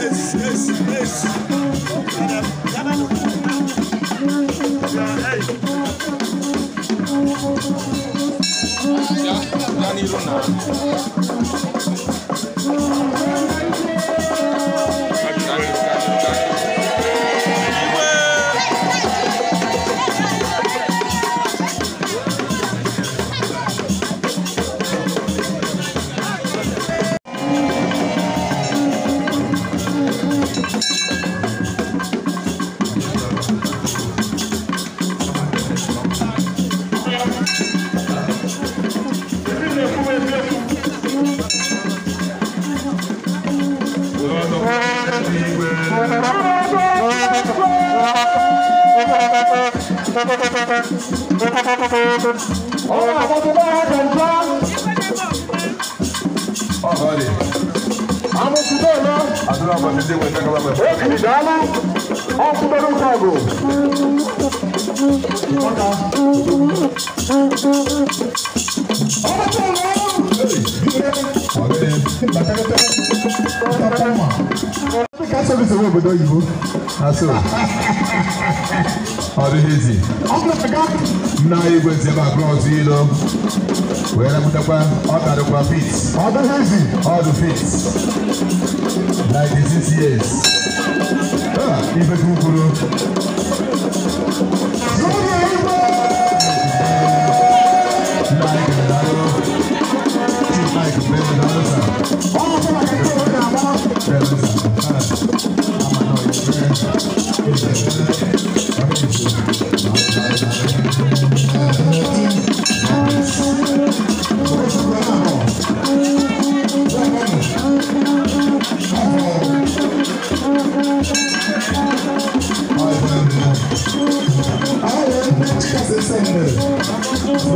Esse, esse, esse. Ọ̀họ́rì. Amúsùdó lọ. Àdúrà bàbí dé wẹ̀ dákàlà bẹ̀. Ó kìí dàálù. Ọ̀kúndọ̀rú kàgò. Ọ̀dà. Ọ̀dà tó lọ. Ọ̀gẹ̀dẹ̀. Bàtẹ́kẹ́tẹ́. Ọ̀dà tó mọ̀. service owó obodo oyibo. Aso. Ọ dịghị izi. Nna anyị gwezi ebe abụọ ọzọ ilo. Wee repụtakwa ọ karịkwa fit. Ọ dịghị izi. Ọ dị fit. Ninety six years. Ah, Ife kwuru.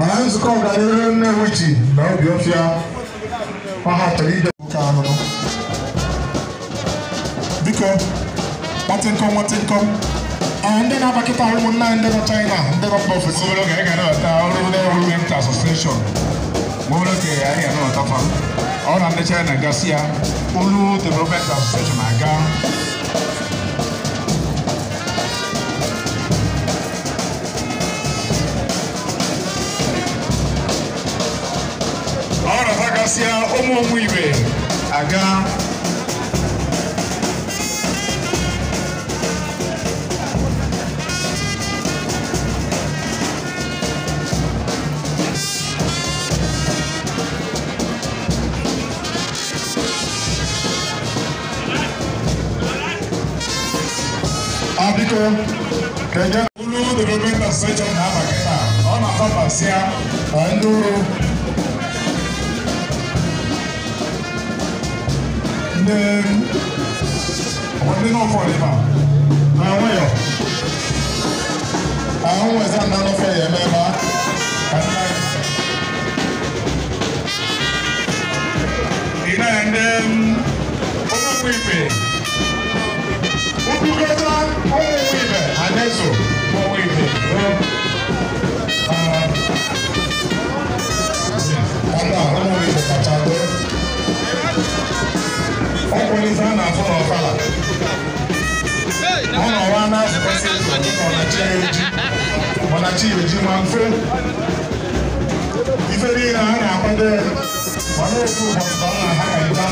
mana nzukọ ọganihu Nnewi ji na Obiofia ọha chọrọ ije nwoke ahụrụ biko kpatịnkọm nwatịnkọm ndị na-abakịta ụmụnna ndị nọ China ndị nọ mba ofesi nwere oge ga na-ata ọrụ ndị ọrụ nta asosieshọn ma ọ bụrụ ka ahịa nọ ọtafa ọ na ndị China gasị ya olu development asosieshọn aga esia ọmụ ọmụ aga biko ka ị gaa olu dị n'obe na secha na-abakịta then wọ́n ní náà kọ́ I ma àwọn yọ àwọn ẹ̀sán nánú fẹ́ yẹ mẹ́ma àti náà. And then, over with it. afọ na ọfala ọ na ọwa na asụkwasị ọnachi eji ọnachi eji ma mfe ife niile a na-akwado mana ofu ụbọchị ka ọ na ha ka ịba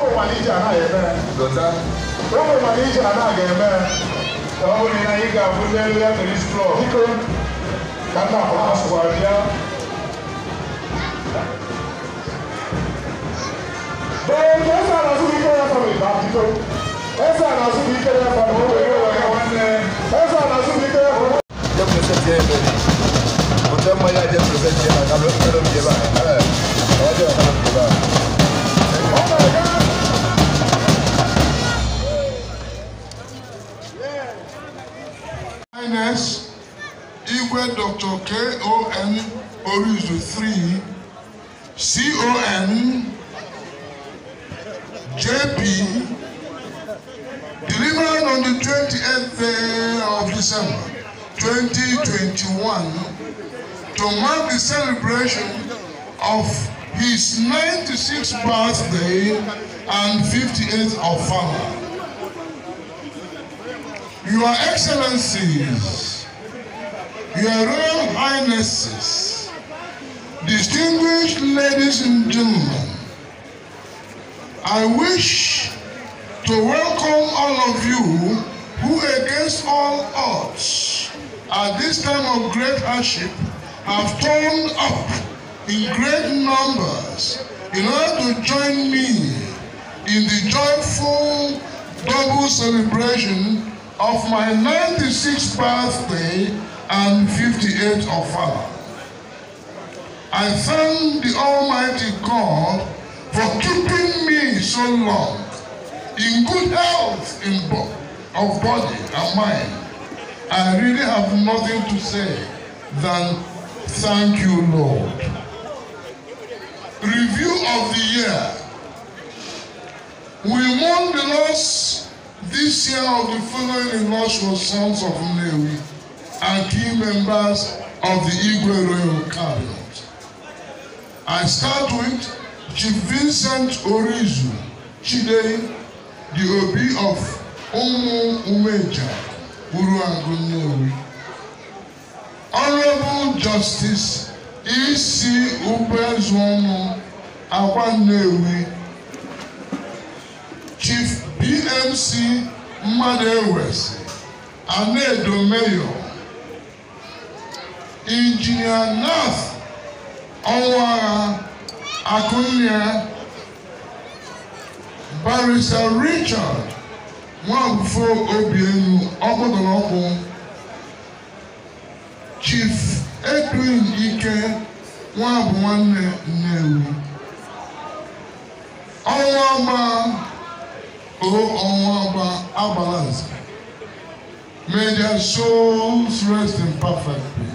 ụmụmalije a na-eme ụmụmalije a na-aga-eme ka ọ bụrụ na ị ga-abụ n'elu ya mere stro biko ka nna akwụkwọ asụkwara bịa Baby ọlọ́run ìbá ti tó ẹsẹ àlàsù bíi kẹlẹ fọwọ́ owó ìwé ọ̀gá JP, delivered on the 28th of December 2021 to mark the celebration of his 96th birthday and 58th of father. Your Excellencies, Your Royal Highnesses, distinguished ladies and gentlemen, I wish to welcome all of you who against all odds at this time of great hardship have turned up in great numbers in order to join me in the joyful double celebration of my 96th birthday and 58th of father. I thank the Almighty God for keeping so long, in good health in bo of body and mind, I really have nothing to say than thank you, Lord. Review of the year. We mourn the loss this year of the following illustrious sons of Nnewi and key members of the Igwe Royal Cabinet. I start with Chief Vincent Orizu. Chidei the Obi of Umu Umeja, Uruangunyori. Honorable Justice E.C. Ubezwonu Akwanewi, Chief BMC Mmadụ Ewesi, Anedo Mayor, Injinia Nath Ọnwagha Akụnye barisa richard nwanfo obienu ọmọdọlọpọ chief edwin ike nwabụ nwanne nnewi ọnwa ọgba o ọnwa ọgba agbalazi may their souls rest in perfect peace.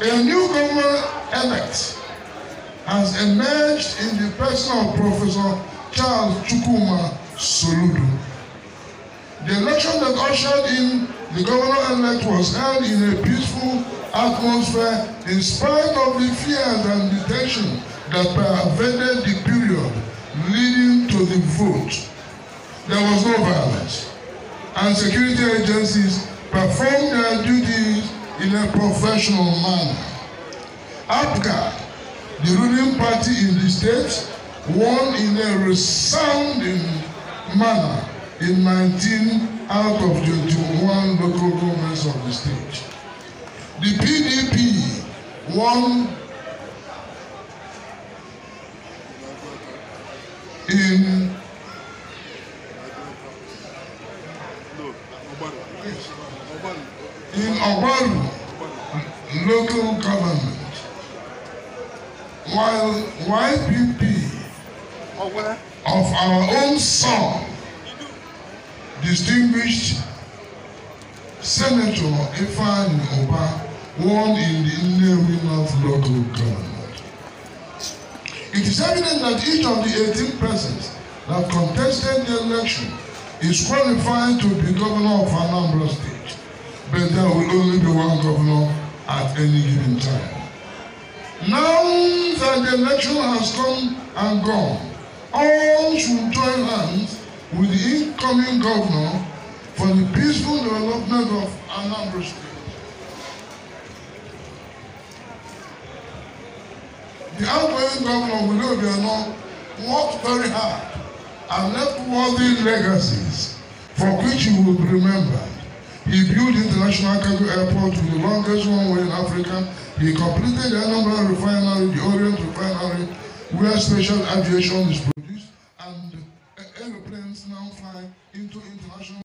A new Congo elect has emerged in the person of Professor Charles Chukuma Soludo. The election that ushered in the governor-elect was held in a peaceful atmosphere in spite of the fears and the tension that pervaded the period leading to the vote. There was no violence, and security agencies performed their duties in a um professional manner. APGA, the ruling party in the state, won in a resounding manner in 19 out of 21 local governments of the state. The PDP won in in Obaru local government, while YPP of our own son, distinguished Senator Ifan Oba, won in the Nnewi North local government. It is evident that each of the 18 persons that contested the election is qualified to be governor of Anambra State, but there will only be one governor at any given time. Now that the election has come and gone, all should join hands with the incoming governor for the peaceful development of Anambra State. The outgoing governor, Willoughby Anon, worked very hard and worthy legacies for which you will be remembered. He built International Cargo Airport, the longest runway in Africa. He completed the Anambra refinery, the Orient refinery, where special aviation is produced, and aeroplanes now fly into international.